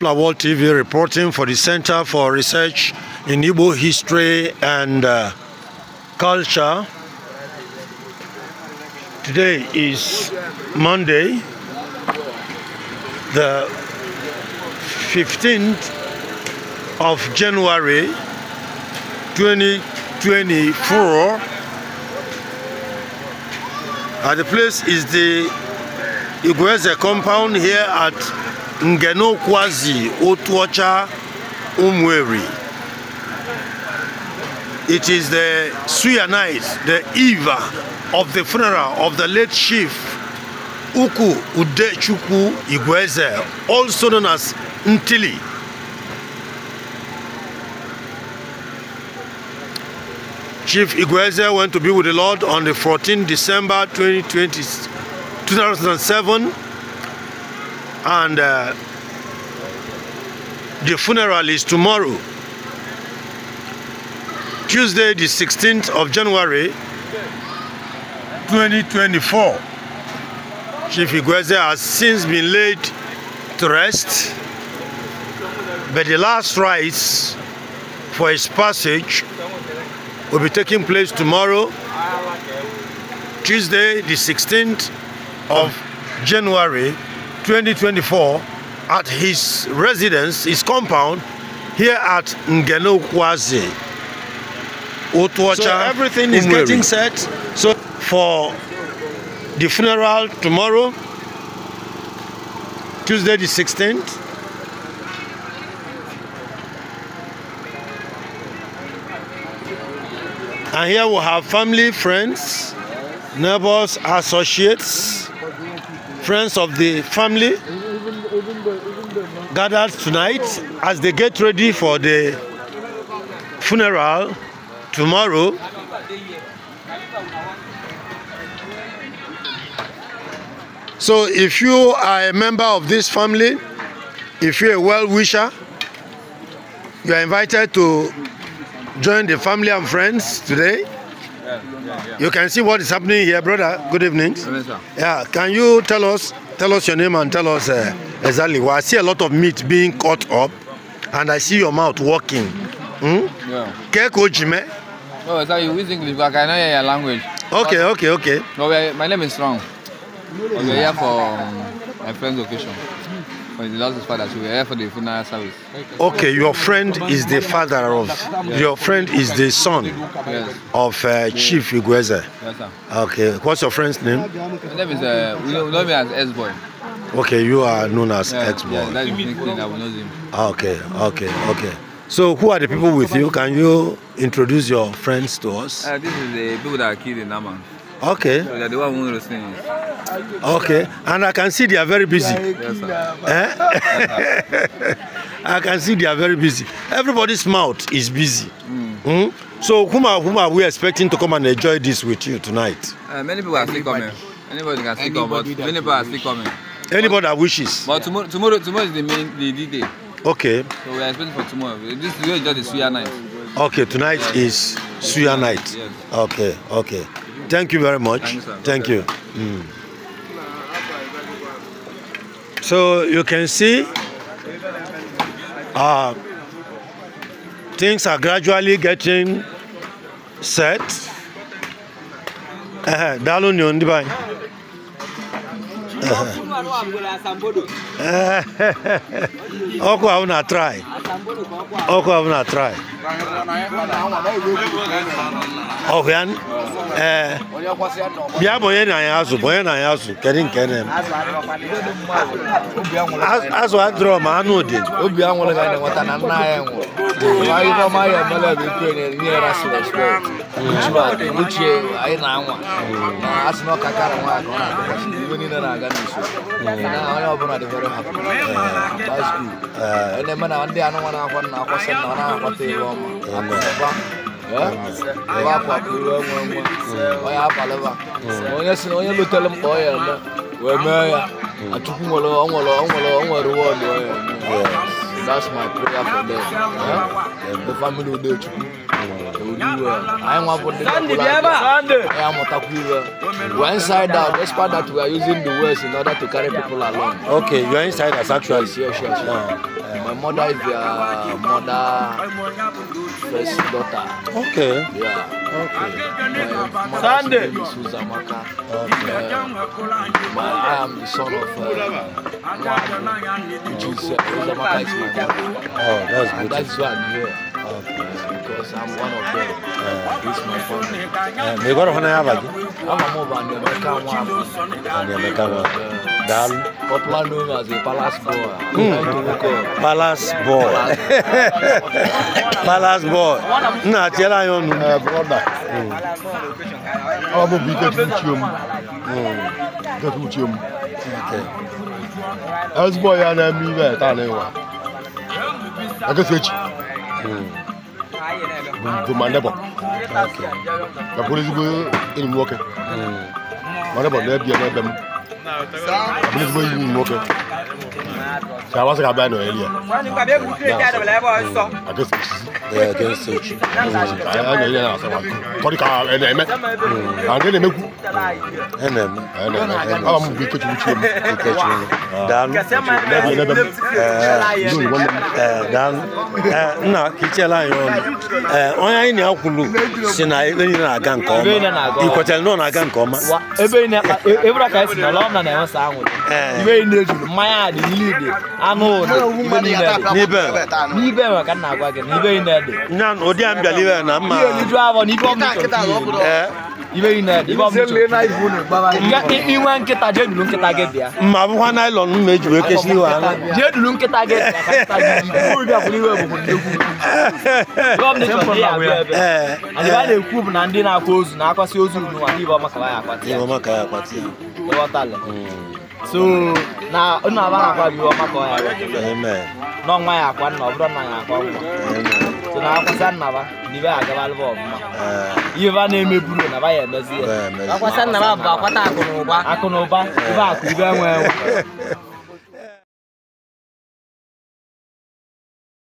World TV reporting for the Center for Research in Igbo History and uh, Culture. Today is Monday, the 15th of January 2024. At the place is the Igueze compound here at kwazi Otuocha Umweri. It is the night, the eve of the funeral of the late chief Uku Udechuku Igweze, also known as Ntili. Chief Igweze went to be with the Lord on the 14th December 2020, 2007 and uh, the funeral is tomorrow Tuesday the 16th of January 2024 Chief Igweze has since been laid to rest but the last rites for his passage will be taking place tomorrow Tuesday the 16th of January 2024 at his residence, his compound, here at Ngenokwazi, Otuacha. So everything is getting set. So for the funeral tomorrow, Tuesday the 16th. And here we have family, friends, neighbors, associates. friends of the family gathered tonight as they get ready for the funeral tomorrow. So if you are a member of this family, if you're a well-wisher, you are invited to join the family and friends today. You can see what is happening here, brother. Good evening. Yeah, can you tell us tell us your name and tell us uh, exactly? Well, I see a lot of meat being cut up, and I see your mouth working. Hmm? Yeah. Oh, sorry, you use English, but I cannot your language. Okay, okay, okay. No, my name is Strong. Okay, here for um, my friend's occasion that is father. So we here for the funeral service. Okay, your friend is the father of. Yes. Your friend is the son yes. of uh, Chief Igweze. Yes, sir. Okay, what's your friend's name? His name is. Uh, know me as S boy. Okay, you are known as yeah, X boy. Yeah, Okay, okay, okay. So who are the people with you? Can you introduce your friends to us? Uh, this is the people that are killed in Amman. Okay. So they are the one who listening. Okay, and I can see they are very busy. Yes, sir. Eh? I can see they are very busy. Everybody's mouth is busy. Mm. Mm? So whom are, whom are we expecting to come and enjoy this with you tonight? Uh, many people are still coming. Anybody can still come, but many people are still coming. Anybody that wishes. But tomorrow, tomorrow, tomorrow is the main the, the day. Okay. So we are expecting for tomorrow. This is just the sweet night. Okay, tonight is Suya night. Okay, okay. Thank you very much. Thank you. Mm. So you can see uh, things are gradually getting set. Uh -huh. ọkụ ahụ na trai ọkụ ahụ na trai ọkụ ya ee bụ na ya azụ bụ na ya azụ kedu nke na azụ adịrọ ma anụ dị obi anwụrụ ga na na nna ya nwụrụ ya bụ na-enye ya rasị respekt anyị na-anwa na asị na na-adịgasị na a uh, last week. Uh, and then when I one day I a for them. inside out, despite that we are using the words in order to carry people along. Okay, you are inside us actually. Yes, yes, yes. Yeah. Uh, uh. My mother is their mother first daughter. Okay. Yeah. Okay. My Sunday. name is Uzamaka. Okay. Uh, my, I am the son of uh, Mwadu, which is uh, Uzamaka is my mother. Oh, that's and that's why I'm here. Okay. Because I'm one of them. Uh, it's my family. Uh, may God honor you. I'm a mobile and the American one. And the American one. Dal. palace boy. Hmm. Palace boy. palace boy. Uh, hmm. hmm. Na tell I I'm a big get you. Get with you. As boy and I me that I a ake fi ekyi bomande bɔ ka polisi bɛ enyim wɔkɛ bomande bɔ n'ebien n'ebɛm ka polisi bɛ enyim wɔkɛ ka wa se ka bɛn n'oyeli yɛ ake fi ekyi ɛ ake fi ekyi ɛ ɛ ɛ ɛ ɛ ɛ tɔri ka ɛ ɛ mɛ ɛ ɛ mɛ ku ɛnam ɛnam ɛnam awa mu bi ketu wuti mu ketu mu dan ɛbi ne bɛ ɛɛ dan ɛɛ nna kitchen line yɔ ɛɛ akulu sina ebe yi na aga nkɔ ma ikɔtɛli na aga nkɔ ma. wa ebe yi na ebura na lɔm na na ɛwɔ san wuli. di nili di anụ ụdị ibe niile dị. n'ibe n'ibe ma ka na ede. nya a mbịa n'ibe na mma. n'ibe yi na iju abụọ n'ibe ọ bụ nsọ. inwe nkịta jee duru nkịta gị bịa ma bụkwa naịlọn m eji wee kesi iwe aṅụ jee duru nkịta gị a na-ekwu bụ na ndị na-akwa ozu na-akwasị ozu ya hmm. so na akwa bụ ya n'ọnwa ya akwa nna ọ bụrụ na ya akwa na akwasa nnaba na ibe agabalụba ọbụma ihe ba eh. na-emeburu na ba ya emezi ya akwasa nnaba bụ akwata akụ na ụba akụ na ụba ibe akụ ibe enwe enwe